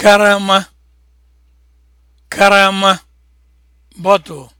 karama karama bottle